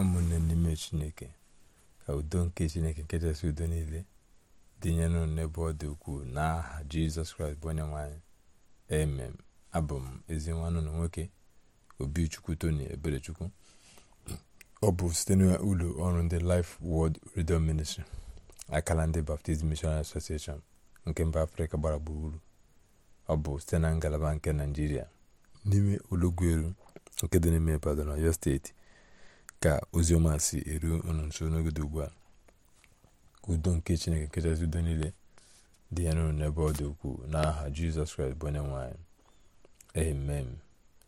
ụmụnne n'ime chineke ka udo nke chineke nke chesị udo niile dịnye nụ n'ebe ọ dị ukwuu n'aha jizọs kraịst bụ onye nwanyị emem abụ m ezi nwanne na nwoke obichukwu toni eberechukwu ọ bụ site n'ụlọ ọrụ ndị Life Word redio ministri akala ndị Baptist Missionary Association nke mba afrịka gbara gburugburu ọ bụ site na ngalaba nke naijiria n'ime olugweru nke dị n'ime Ibadan Ọyọ steeti ka ọma si eru unu nso n'ogodo ugbu a ka udo nke chineke nkechasị udo niile dị ya n'ụlọ n'ebe ọ dị ukwuu n'aha jizọs kraịst bụ onye nwanyị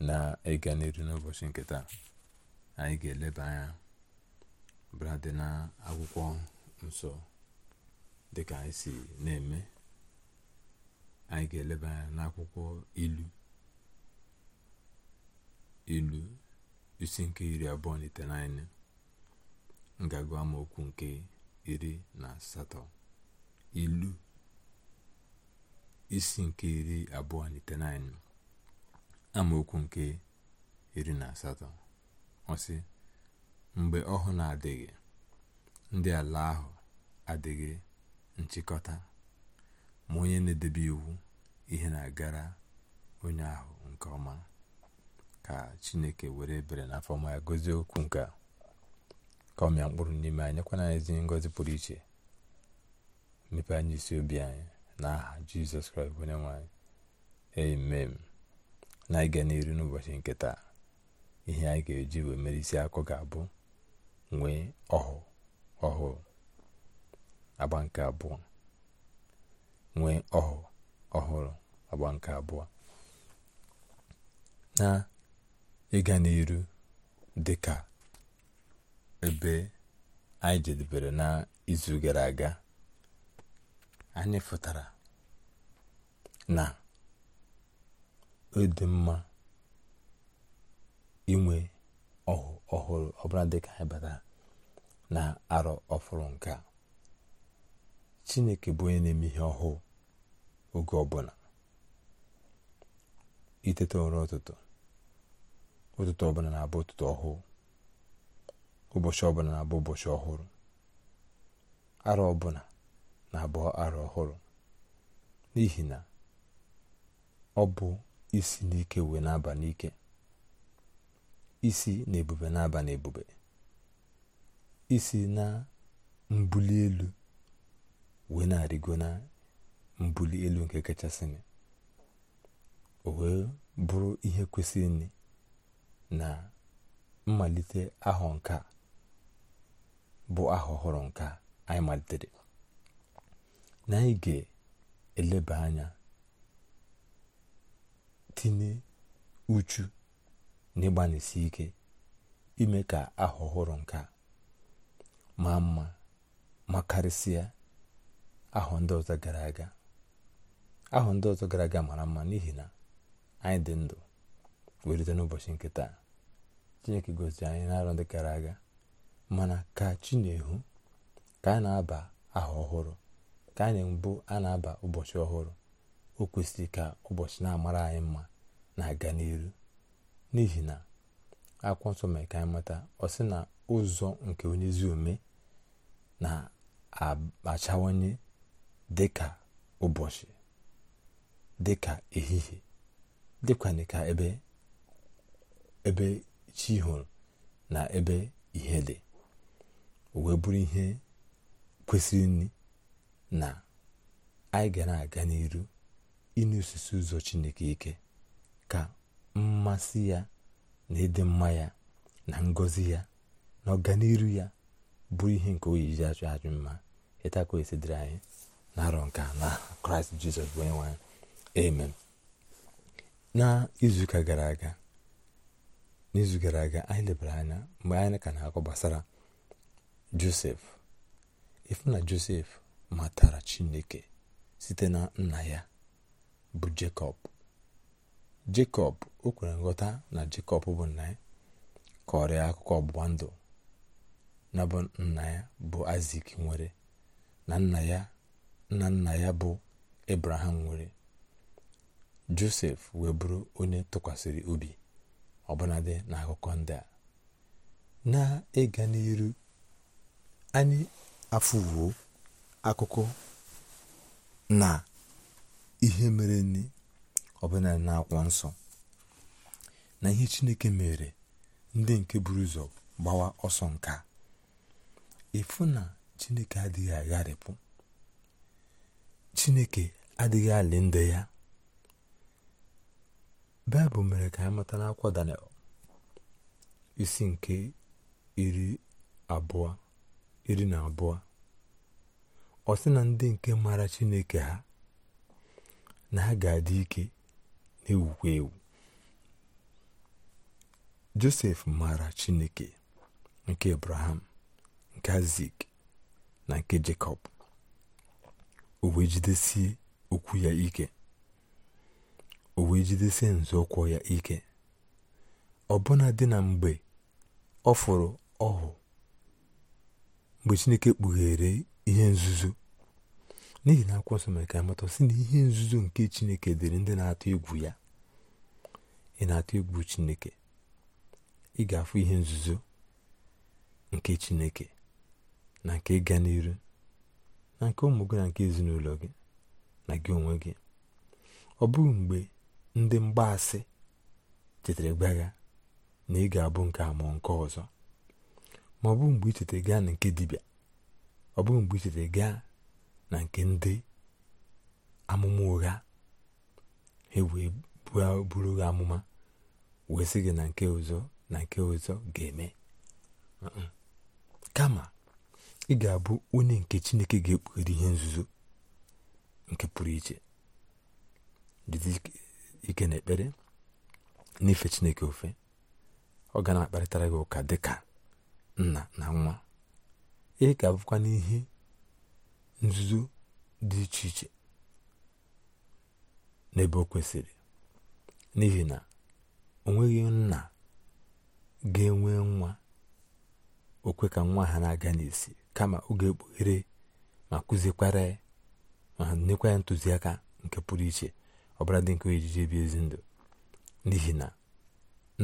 na ịga n'elu n'ụbọchị nke taa anyị ga-eleba anya brad na akwụkwọ nsọ dịka anyị si na-eme anyị ga-eleba anya n'akwụkwọ ilu ilu isi nke iri abụọ na itenaine ngagụ amaokwu nke iri na asatọ ilu isi nke iri abụọ na itenaine amaokwu nke iri na asatọ ọsị mgbe ọhụụ na-adịghị ndị ala ahụ adịghị nchịkọta ma onye na-edebe iwu ihe na-agara onye ahụ nke ọma ka chineke were ebere na afọ ọma ya gozie okwu nke a ka ọ mịa mkpụrụ n'ime anyị nyekwana anyị ezi ngọzi pụrụ iche mepe anyị isi obi anyị na aha jizọs kraịst onye nwe anyị emem na anyị ga n'iru n'ụbọchị nke taa ihe anyị ga-eji wee mere isi akụ ga-abụ nwee ọhụụ ọhụụ agba nke abụọ nwee ọhụụ ọhụrụ agba nke abụọ na ịga n'iru dị ka ebe anyị jedebere n'izu gara aga anyị fụtara na ọ mma inwe ọhụ ọhụrụ ọbụla dịka anyị batara na arọ ọfụrụ nke a chineke bụ onye na-eme ihe ọhụụ oge ọbụla iteta ụra ụtụtụ ụtụtụ ọbụla na-abụ ụtụtụ ọhụụ ụbọchị ọbụla na-abụ ụbọchị ọhụrụ arọ ọbụla na-abụ arọ ọhụrụ n'ihi na ọ bụ isi n'ike wee na n'ike isi na ebube n'ebube isi na mbuli elu wee na-arịgo na mbuli elu nke kachasịnị o wee bụrụ ihe kwesịrị na mmalite ahọ nke bụ aha ọhụrụ nke anyị malitere na anyị ga-eleba anya tinye uchu na ike ime ka aha ọhụrụ nke a maa mma ma karịsịa ahọ ndị ọzọ gara aga ahọ ndị ọzọ gara aga mara mma n'ihi na anyị dị ndụ welite n'ụbọchị nke taa chineke gosi anyị n'arọ ndị gara aga mana ka chi na-ehu ka a na-aba aha ọhụrụ ka anyị mbụ a na-aba ụbọchị ọhụrụ o kwesịrị ka ụbọchị na-amara anyị mma na-aga n'iru n'ihi na akwụkwọ nsọ mere ka anyị mata ọ sị na ụzọ nke onye ezi ome na-achawanye dịka ụbọchị dịka ehihie dịkwana ka ebe ebe chi hụrụ na ebe ihe dị wee bụrụ ihe kwesịrị nri na anyị gara aga n'iru ịnụ osisi ụzọ chineke ike ka mmasị ya na ịdị mma ya na ngọzi ya na ọganiru ya bụrụ ihe nke oyi iji achụ achụ mma ịtakọ esidịrị anyị na arọ nke na kraịst jizọs wee nwa amen na izuụka gara aga n'izu gara aga anyị lebara anya mgbe anyị ka na-akọ gbasara josef ifu na josef matara chineke site na nna ya bụ jekọb jekọb o kwere nghọta na jekọb bụ nna ya kọrọ ya akụkọ ọgbụgba ndụ na bụ nna ya bụ isak nwere na nna ya nna nna ya bụ ebraham nwere josef wee bụrụ onye tụkwasịrị obi ọbụnadị n'akụkọ ndị a na-ịga n'iru anyị afụwo akụkọ na ihe mere nne na-akwọ nsọ na ihe chineke mere ndị nke buru ụzọ gbawa ọsọ nka ịfụ na chineke adịghị agharịpụ chineke adịghị alị ndị ya baịbụl mere ka ha mata n'akwụkwọ daniel isi nke iri abụọ iri na abụọ ọ sị na ndị nke mara chineke ha na ha ga-adị ike na-ewukwa ewu josef mara chineke nke abraham nke azik na nke jakob o wee jidesie okwu ya ike o wee jidesie nzọụkwụ ya ike ọbụna dị na mgbe ọ fụrụ ọhụ mgbe chineke kpughere ihe nzuzo n'ihi na akwụkwọ nsọ mere ka amata sị na ihe nzuzo nke chineke dịrị ndị na-atụ egwu ya ị na-atụ egwu chineke ị ga-afụ ihe nzuzo nke chineke na nke ịga n'iru na nke ụmụ gị na nke ezinụlọ gị na gị onwe gị ọ bụghị mgbe ndị mgbaasị chetara gba ya na ị ga-abụ nke a nke ọzọ ma ọ bụ mgbe ichetere gaa na nke dibịa ọ bụ mgbe ichetere gaa na nke ndị amụma ụgha ha wee buru gị amụma wee sị gị na nke ọzọ na nke ọzọ ga-eme kama ị ga-abụ onye nke chineke ga-ekpughere ihe nzuzo nke pụrụ iche ike na-ekpere na n'ife chineke ofe ọ ga na-akparịtara gị ụka dịka nna na nwa ị ka abụkwa n'ihe nzuzo dị iche iche n'ebe o kwesịrị n'ihi na o nweghị nna ga-enwe nwa okwe ka nwa ha na-aga n'isi kama ọ ga-ekpughere ma kụziekwara ya ma nyekwa ya ntụziaka nke pụrụ iche ọbara dị nke ojiji ebi ezi ndụ n'ihi na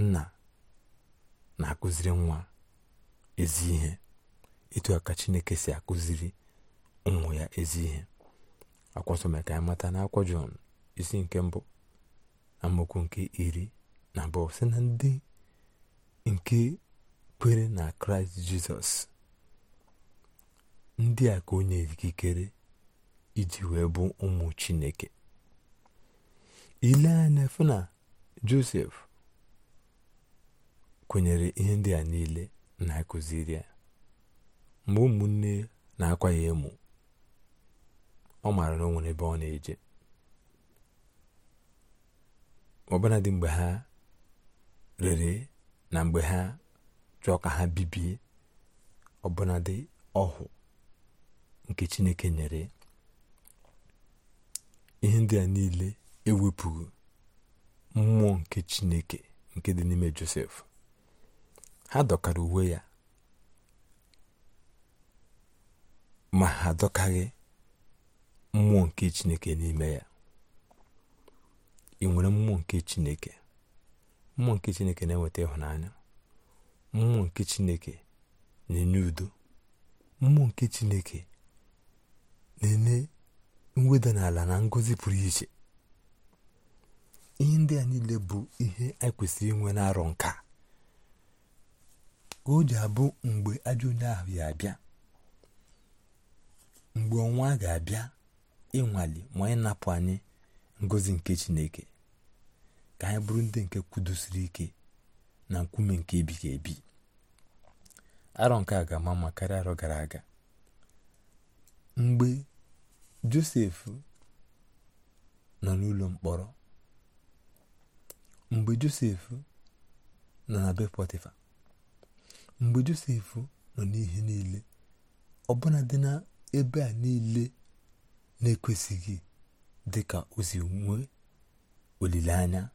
nna na-akụziri nwa ezi ihe etu a chineke si akụziri ụmụ ya ezi ihe akwụkwọ mere ka anyị mata na akwụkwọ jọn isi nke mbụ na amaokwu nke iri na abụọ si na ndị nke kwere na kraịst jizọs ndị a ka onye nyere ikikere iji wee bụ ụmụ chineke ile anya fụ na josef kwenyere ihe ndị a niile na-akụziri ya mgbe ụmụnne na-akwa ya emu ọ maara na o ebe ọ na-eje ọbụna dị mgbe ha rere na mgbe ha chọọ ka ha bibie ọbụna dị ọhụ nke chineke nyere ihe ndị a niile ewepụghị mmụọ nke chineke nke dị n'ime josef ha dọkara uwe ya ma ha adọkaghị mmụọ nke chineke n'ime ya ị nwere mmụọ nke chineke mmụọ nke chineke na enweta ịhụnanya mmụọ nke chineke na-enye udo mmụọ nke chineke na-enye mweda n'ala na ngọzi pụrụ iche ihe ndị a niile bụ ihe anyị e kwesịrị inwe na-arọ nka ka o ji abụ mgbe ajọ ahụ ya abịa mgbe ọnwa ga-abịa ịnwale ma anyị napụ anyị ngozi nke chineke ka anyị bụrụ ndị nke kwudosiri ike na nkume nke ebighị ebi arọ nke a ga-ama ma karịa arọ gara aga mgbe josef nọ n'ụlọ mkpọrọ mgbe josef nọ na be mgbe josef nọ n'ihe niile ọbụna dị na ebe a niile na-ekwesịghị dị ka si nwee olileanya o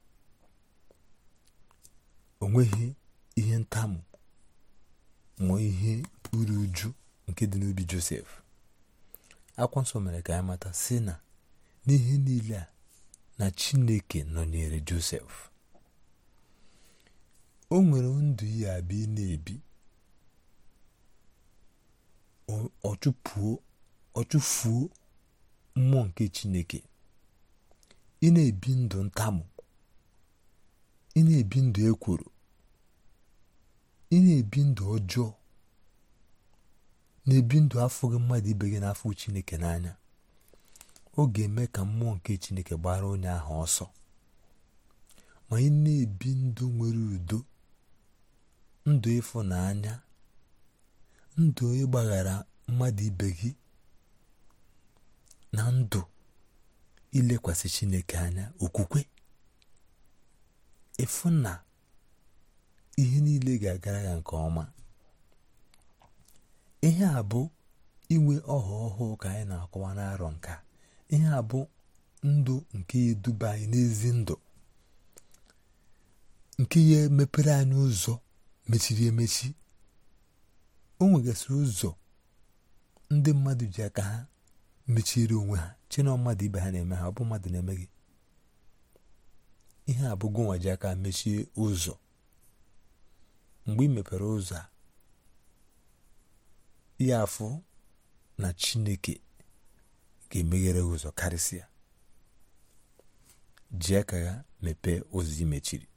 onweghị ihe ntamu ma ihe uru uju nke dị n'obi josef akwụkwọ nsọ mere ka anyị mata si na n'ihe niile a na chineke nọnyere josef o nwere ndụ ya abịa na-ebi ọchụfuo mmụọ nke chineke ị na-ebi ndụ ntamụ ị na-ebi ndụ ekworo ị na-ebi ndụ ọjọọ na-ebi ndụ afọ gị mmadụ ibe gị n'afọ chineke n'anya ọ ga-eme ka mmụọ nke chineke gbara onye ahụ ọsọ ma ị na-ebi ndụ nwere udo ndụ ịfụnanya ndụ ịgbaghara mmadụ ibe gị na ndụ ilekwasị chineke anya okwukwe ịfụ na ihe niile ga-agara ya nke ọma ihe a bụ inwe ọha ọhụụ ka anyị na-akọwa n'arọ nka ihe a bụ ndụ nke eduba anyị n'ezi ndụ nke ya emepere anyị ụzọ mechiri emechi o nwegasịrị ụzọ ndị mmadụ ji aka ha mechiri onwe ha chena mmadụ ibe ha na-eme ha ọ bụ mmadụ na-eme gị ihe abụghị nwa ji aka mechie ụzọ mgbe ị mepere ụzọ a ya afụ na chineke ga-emeghere ụzọ karịsịa ji aka ha mepee ụzọ imechiri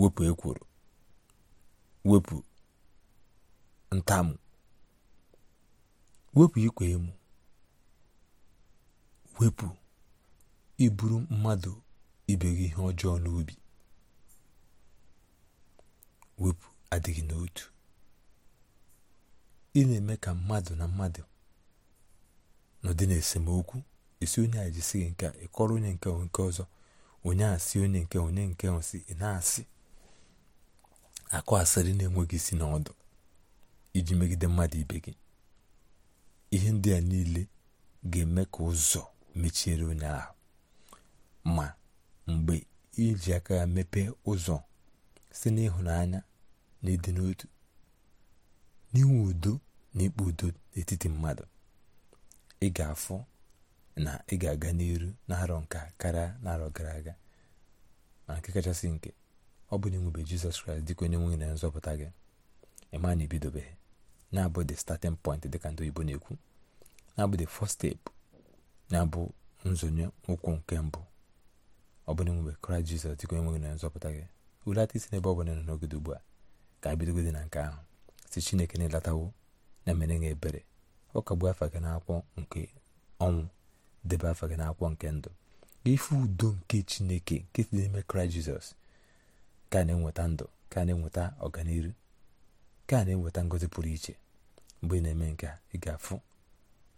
wepụ ekworo wepụ ntamụ wepụ ikwe emu wepụ iburu mmadụ ibe gị ihe ọjọọ n'obi wepụ adịghị n'otu ị na-eme ka mmadụ na mmadụ nọdị n'esemokwu esi onye a jisi gị nke ịkọrọ onye nke nke ọzọ onye a sị onye nke onye nke si ị na-asị akụ asịrị na-enweghị isi n'ọdụ iji megide mmadụ ibe gị ihe ndị a niile ga-eme ka ụzọ mechiere onye ahụ ma mgbe iji aka ya mepee ụzọ si n'ịhụnanya na ịdị n'otu n'inwe udo na ikpe udo n'etiti mmadụ ị ga-afụ na ị ga-aga n'iru na arọ nka karịa na gara aga ma nke kachasị nke ọ bụ na jizọs kraịst dịka onye nwe na nzọpụta gị ịma na ebidobeghị na-abụ the starting point dịka ndị oyibo na-ekwu na-abụ the first step na-abụ nzonye ụkwụ nke mbụ ọ bụ na inwebe kraịst jizọs dịka onye nwe na nzọpụta gị wulata isi n'ebe ọ bụla nọ n'ogodo ugbu a ka ebidogode na nke ahụ si chineke na-elatawo na emere nye ebere ọ kagbu afa gị n'akwụkwọ nke ọnwụ debe afa gị na nke ndụ ife udo nke chineke nke si n'ime kraịst jizọs ka na-enweta ndụ ka na-enweta ọganihu ka na-enweta ngozi pụrụ iche mgbe ị na-eme nke a ị ga-afụ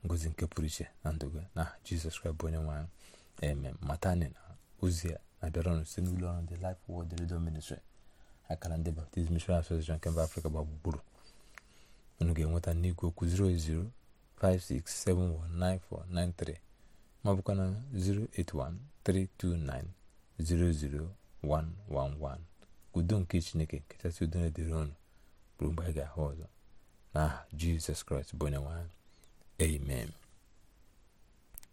ngozi nke pụrụ iche na ndụ gị na jizọs kraịst bụ onye nwe anyị eme matani na ozi a na-abịara ọnụ site n'ụlọ ọrụ ndị Life wod Radio Ministry akara ndị Baptist Mission Association nke mba Afrịka gba gburugburu unu ga-enweta n'igwe okwu 08056719493 ma ọ bụkwa 08132900111 udo nke chineke nkechasị udo na-edere ọnụ bụrụ mgbe anyị ga-ahụ ọzọ n'aha jizọs kraịst bụ onye nwe amen